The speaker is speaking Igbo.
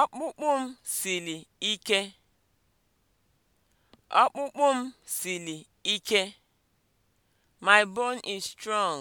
Ọkpụkpụ m siri ike. Ọkpụkpụ m siri ike. My bone is strong.